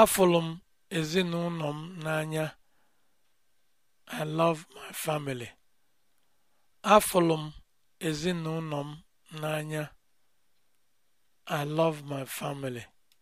Afụrụ m ezinụlọ m n'anya. I my family. m n'anya. I love my family.